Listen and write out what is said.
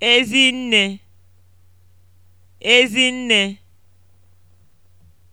Ezi nne. Ezi nne.